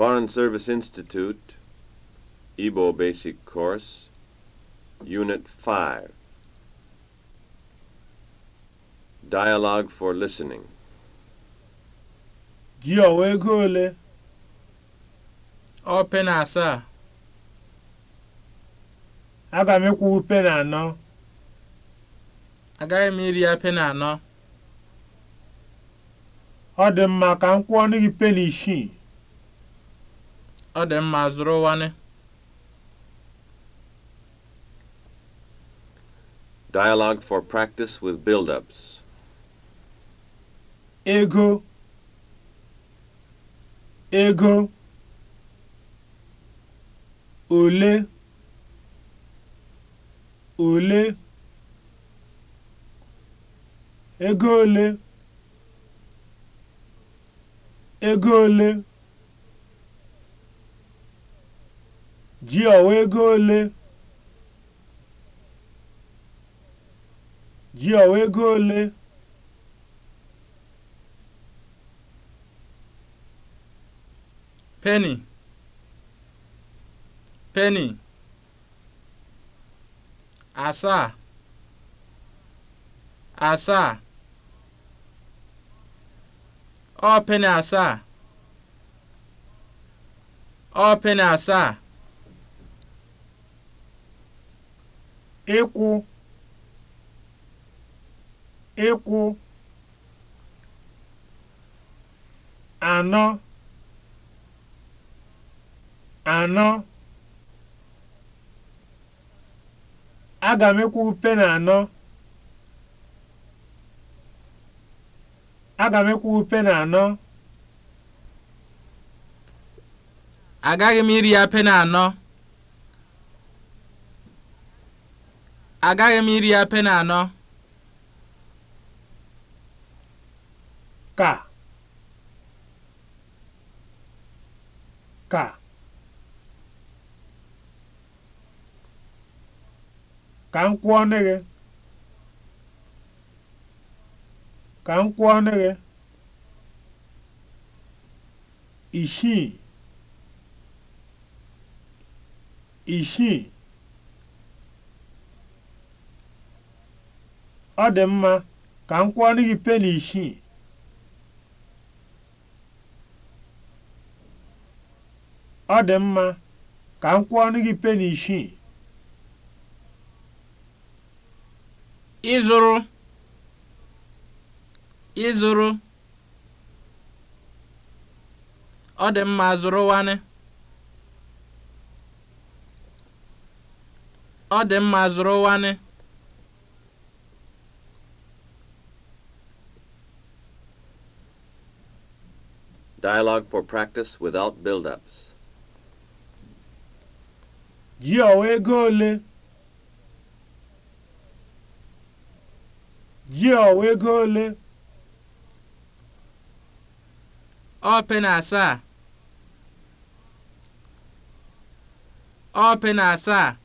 Foreign Service Institute, Igbo Basic Course, Unit 5. Dialogue for Listening. ji ọwa ego ole ọ na asaa aga m ịkwụwu pena anọ agaghị m iri ya pena anọ ọ dị mma ka m kwụọ ọnụ gị pena isii ọ dị mma zụrụwanị Dialogue for practice with build-ups. Ego. Ego. Ole. Ole. Ego ole. Ego ole. ji ọwa ego ole ji ọwa ego ole penny penny asaa asaa ọ penny asaa ọ penny asaa ịkwụ ịkwụ anọ anọ aga m ịkwụ peni anọ aga m ịkwụ peni anọ agaghị m iri ya na anọ agaghị m iri ya na anọ ka ka ka m kwụọ gị ka m kwụọ ọnụ gị isii isii ọ dị mma ka m kwụọrọ gị peni isii ọ dị mma ka m kwụọrọ gị peni isii ịzụrụ ịzụrụ ọ dị mma zụrụwanị ọ dị mma zụrụwanị Dialogue for practice without build-ups. Ji ọwa ego ole? Ji ọwa ego ole? Ọ pị na asaa. na asaa.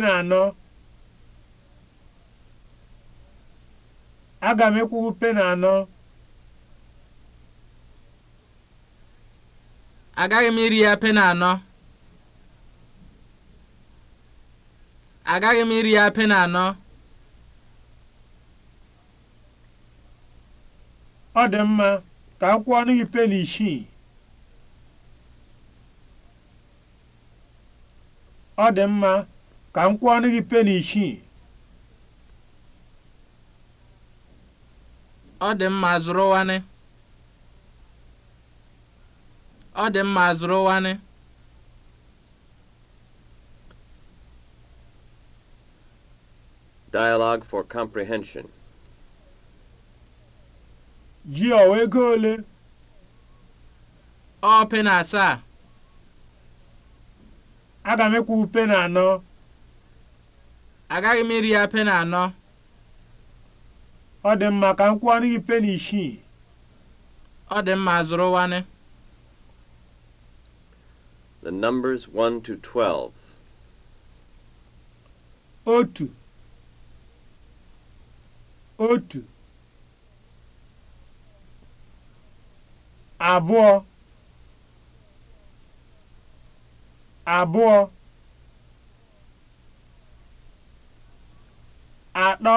na anọ. aga m ekwubu peni anọ agaghị m iri ya peni anọ agaghị m iri ya peni anọ ọ dị mma ka m kwụọ ọnụ gị isii ọ dị mma ka m kwụọ ọnụ gị isii ọ dị mma zụrụwanị ọ dị mma zụrụwanị Dialogue for comprehension. Ji ọ ego ole? Ọ pena asaa. Aga m ekwu pena anọ. Agaghị m iri ya na anọ. ọ dị mma ka m kwụọ gị peni isii ọ dị mma zụrụwanị The numbers 1 to 12. Otu. Otu. Abụọ. Abụọ. Atọ.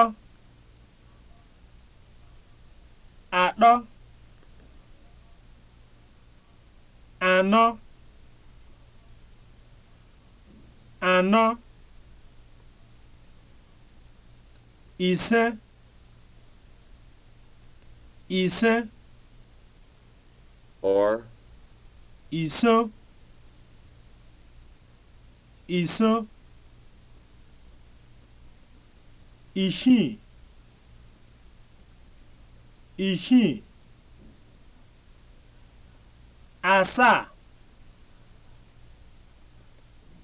anọ ise ise or iso iso ishin? ishin? asaa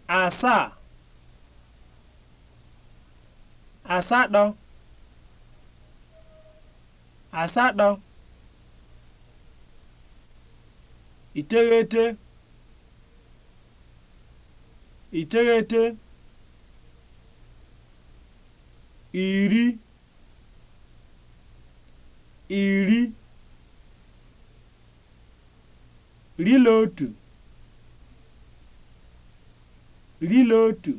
asaa asatọ asatọ iteghete iteghete iri iri rila otu rila otu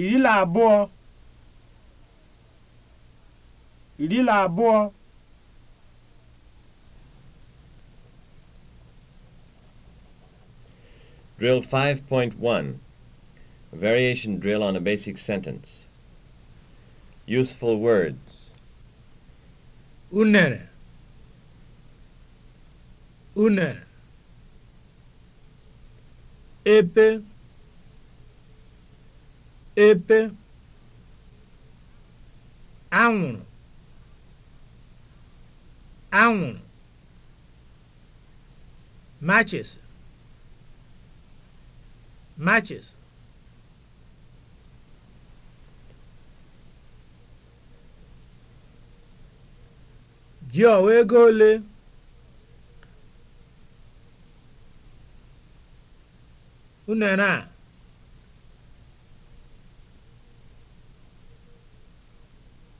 iri na abụọ iri na abụọ Drill 5.1 A variation drill on a basic sentence. Useful words. Unere. Unere. Epe. epe anwụrụ anwụrụ matches matches gị ọwa ego ole unere a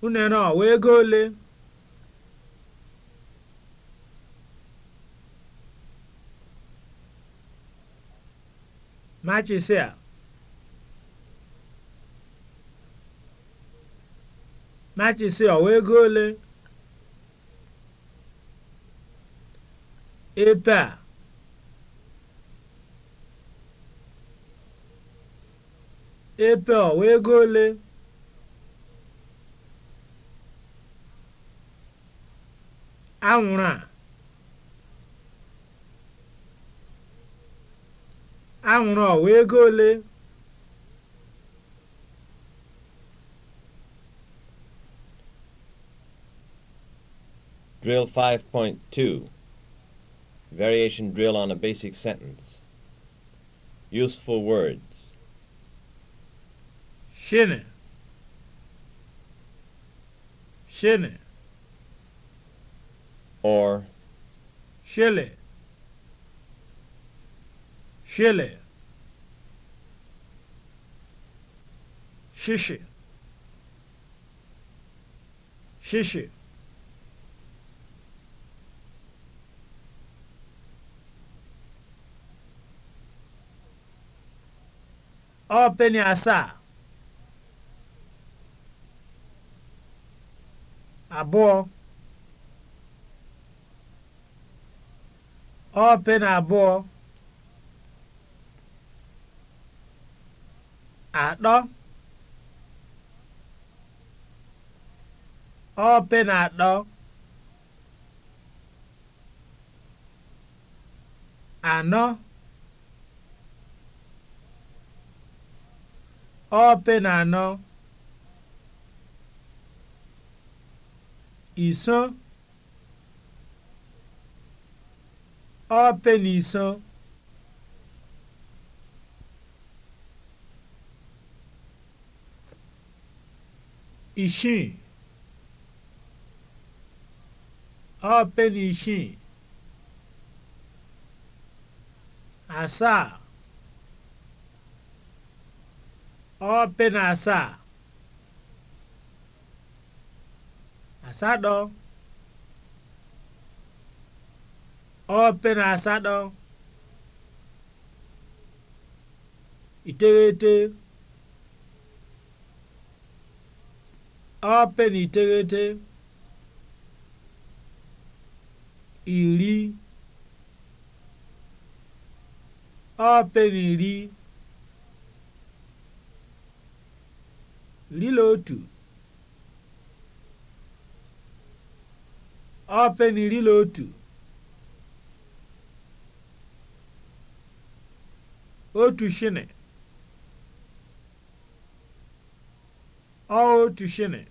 unere ọwa ego ole machịsị a machịsị ọwa ego ole ebe a ebe ọwa ego ole anwụrụ a anwụrụ ọwa ego ole Drill 5.2 Variation drill on a basic sentence. Useful words. Shine. Shine. or shilling shilling shishi shishi ọ penny asaa abụọ ọ na abụọ atọ ọ na atọ anọ ọ na anọ iso ọpe n'iso isii ọpe n'isii asaa ọpe na asaa asatọ ope na asatọ iteghete ope na iteghete iri ope na iri iri na otu ope na iri na otu otu shini otu shini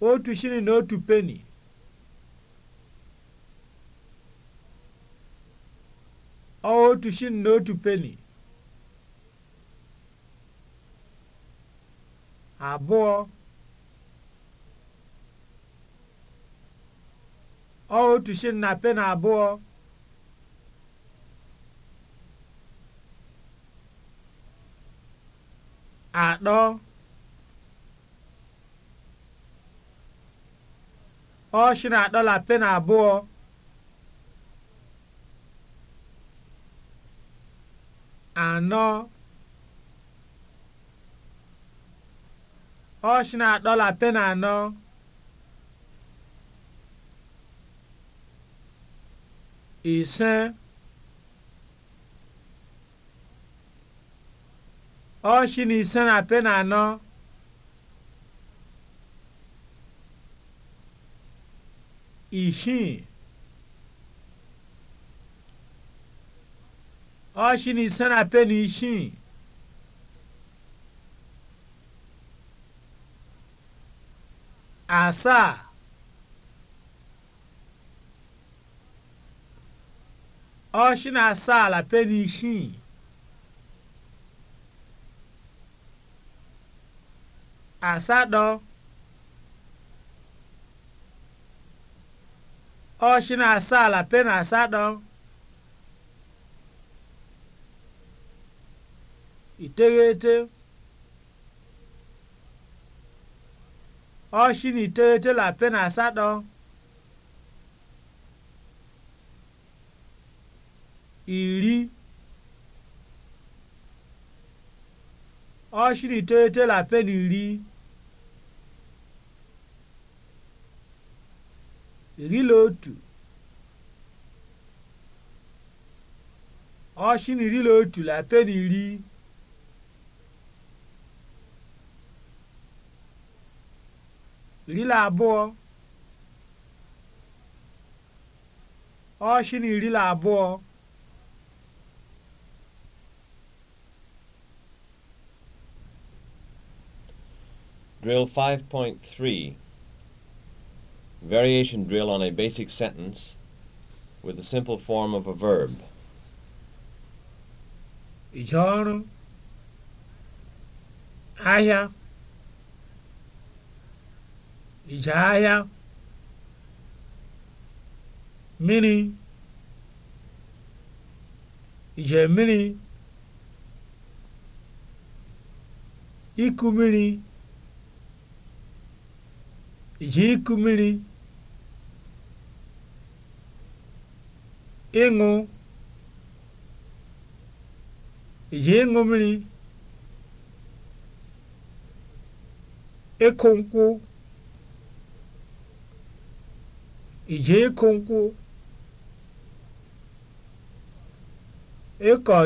otu na otu peni peni abụọ ọ otu shilling na peni abụọ atọ ọ adọla atọ na abụọ anọ ọ adọla atọ na anọ ise ọchị na ise na pe na anọ isii ọchị na ise na pe na isii asaa ọchị na-asa ala peni isii asatọ ọchị na-asa ala peni asatọ iteghete ọchị na iteghete la peni asatọ iri ọchịrị la pe ni iri iri na otu ọchịrị iri na otu la na pen iri iri na abụọ ọchịrị iri na abụọ Drill 5.3 Variation drill on a basic sentence with a simple form of a verb. Ije ọrụ ahịa ije ahịa mmiri ije mini, iku mini. ji ịkụ mmiri ịṅụ mmiri ịkụ nkwụ ije ịkụ nkwụ ịkọ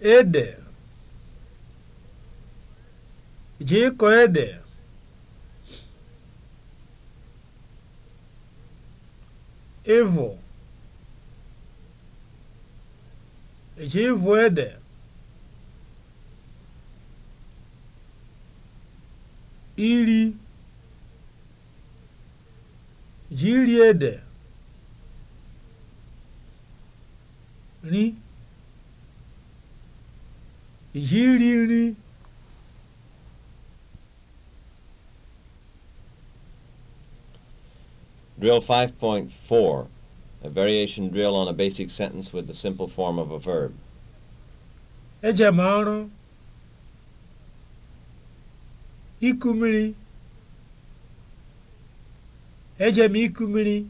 ede je ịkọ ede ịvụ je ịvụ ede iri ede ri yiri nri Drill 5.4, a variation drill on a basic sentence with the simple form of a verb. Ejem m ọrụ iku mmiri iku mmiri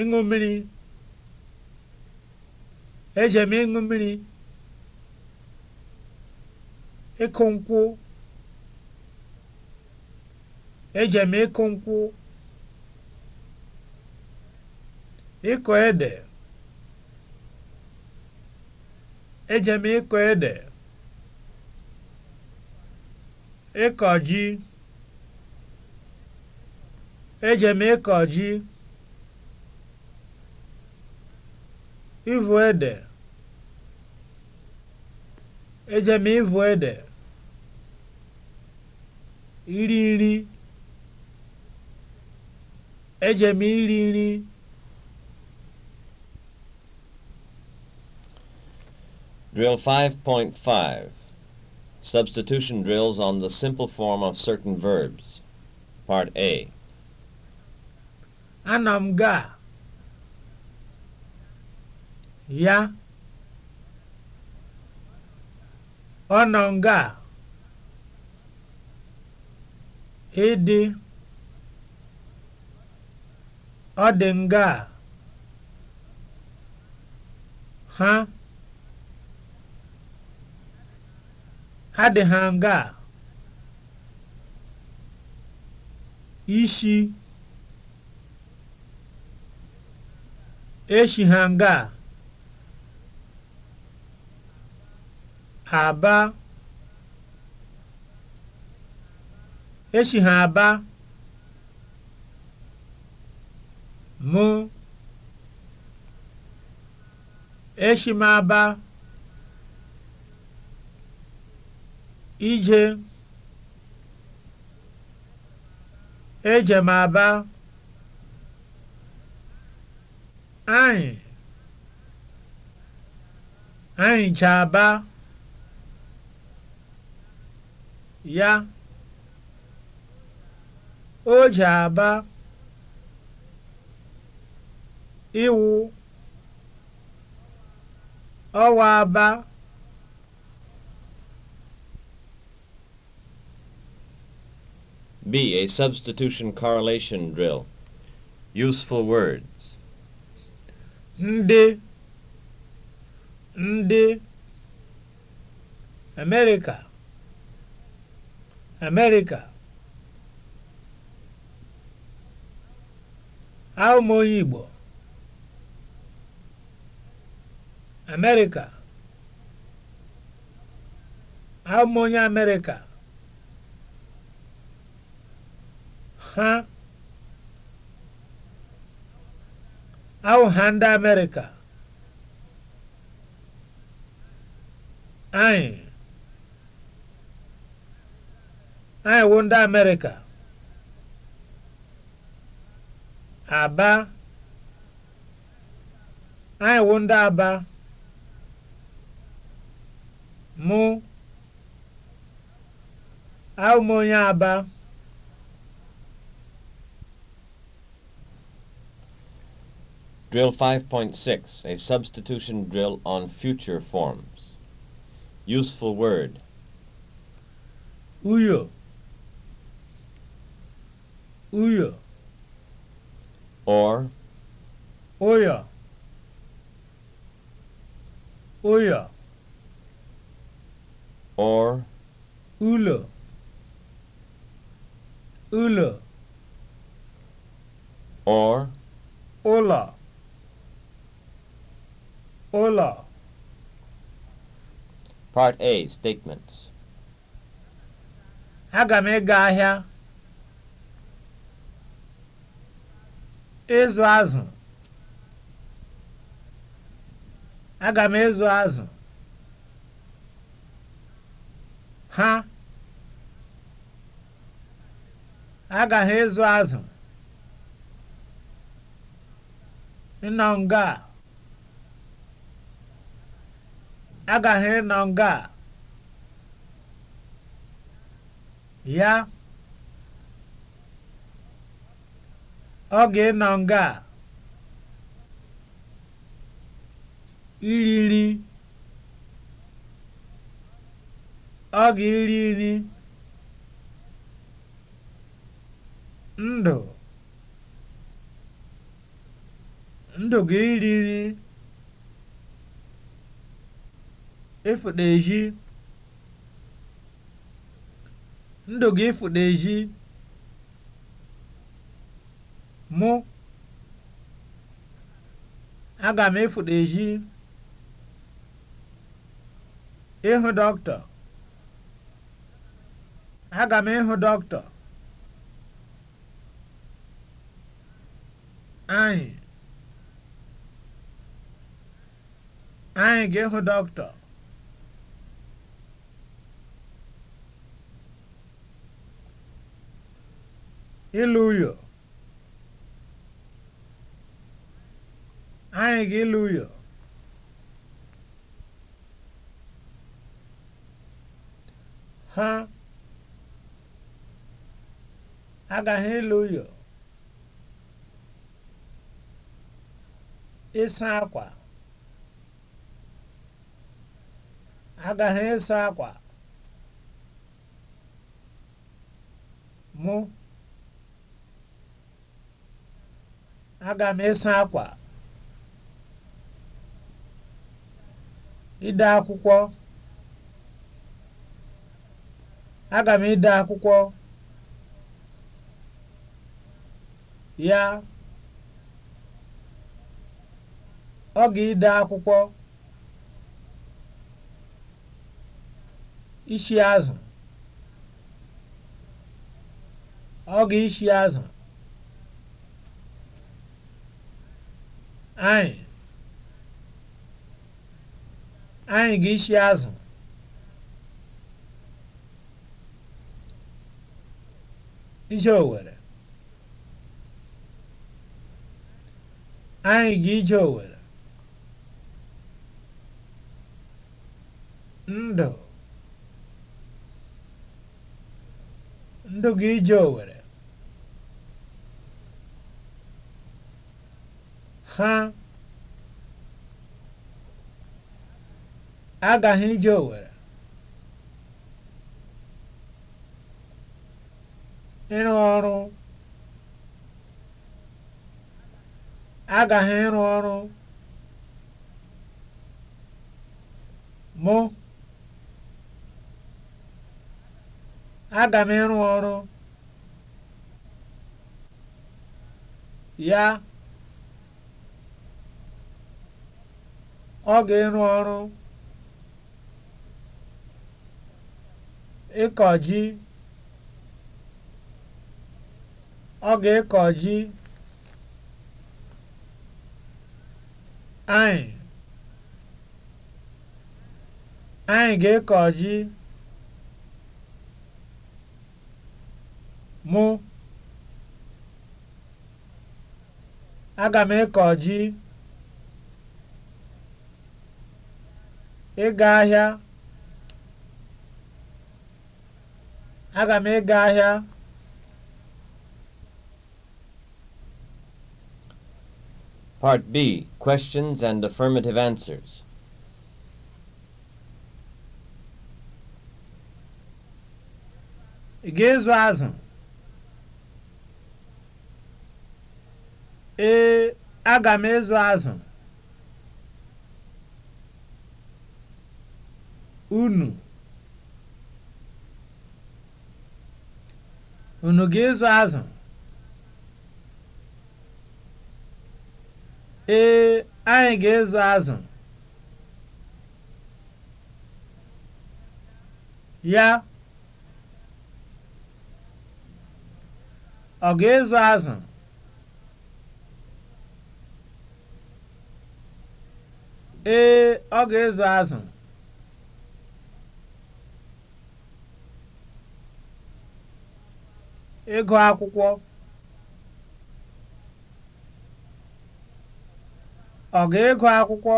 ịṅụ mmiri eje m ịṅụ mmiri ịkụ nkwụ ịkụ nkwụ ịkọ ede ịkọ ji eje ịkọ ji ịvụ ede Eje m ịvụ ede. Iri nri. Eje m iri nri. Drill 5.5 Substitution drills on the simple form of certain verbs. Part A. Anamga Ya. ọ nọ ngaa, e ịdị ọ dị ngaa, ha adị ha nga a ishi eshi ha nga a aba echi ha aba mụ echi m aba ije eje m aba anyị anyị cha aba ya o ji aba ịwụ ọwa aba B. A substitution correlation drill. Useful words. Ndị America Amerịka Aụmoye Igbo Amerịka Aụmoye Amerịka ha awụha ndị Amerika, anyị anyị wụ ndị amerịka aba anyị wụ ndị aba mụ ahụ m onye aba Drill 5.6, a substitution drill on future forms. Useful word. Uyo. uyo or Oya! Oya! or ulo ulo or ola ola part a statements aga m ahịa ịzụ azụ aga m ịzụ azụ ha agaghị ịzụ azụ ịnọ nga agaghị ịnọ nga ya Ọ ga-ịnọ nga a? iri nri ọ ga-eri nri ndụ ndụ ga-eri nri ịfụta ezi ndụ ga-ịfụta ezi mụ aga m efoto echi ịhụ dọkịta aga m ịhụ dọkịta anyị anyị ga-ịhụ dọkịta ịlụ ụyọ. Hallelujah. Ha agaghị ịlụ ụyọ ịsa akwa agaghị ịsa akwa mụ aga m ịsa akwa Ide akwụkwọ. Aga m ide akwụkwọ. Ya. Ọ ga-ide akwụkwọ. Ishi azụ. Ọ ga-ishi azụ. Anyị. anyị ga-eshi azụ ije Owerri anyị ga-ije Owerri ndụ ndụ ga-ije Owerri ha agaghị ije Owere ịrụ ọrụ agaghị ịrụ ọrụ mụ aga m ịrụ ọrụ ya ọ ga-ịrụ ọrụ ịkọ ọ ga ekọji anyị anyị ga ekọji mụ aga m ịkọji ịga ahịa Aga m ịga ahịa Part B Questions and Affirmative Answers. Ị ga-ezu azụ? Ee, aga m ezu azụ. Unu. unu ga-ezu azụ ee anyị ga-ezu azụ ya ọ ga-ezu azụ ee ọ ga-ezu azụ ego akwụkwọ ọ ga-ego akwụkwọ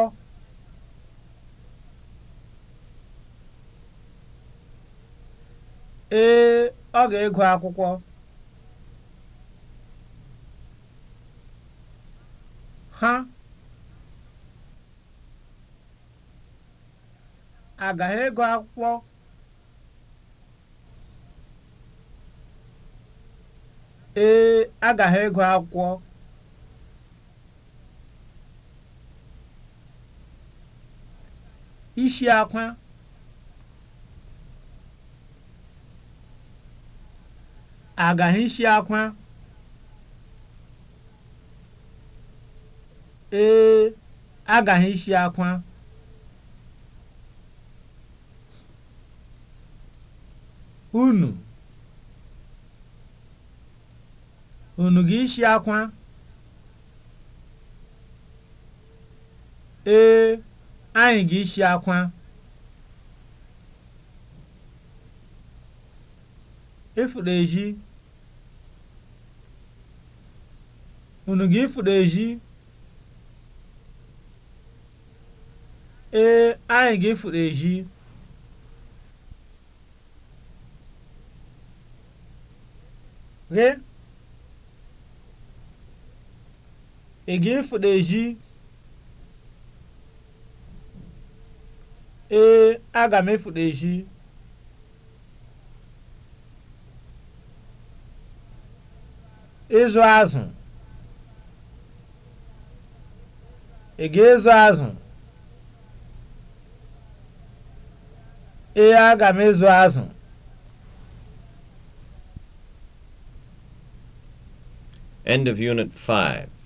ee ọ ga-ego akwụkwọ ha agaghị ego akwụkwọ ee agaghị ịgụ akwụkwọ isi akwa agaghị isi akwa ee agaghị isi akwa unu unu ga-isi akwa ee anyị ga-isi akwa ịfụrụ ezi unu ga-ifụrụ ezi ee anyị ga-ifụrụ ezi ghe again for the e aga ịzụ ga-ịzụ azụ ee aga m ịzụ e azụ End of Unit 5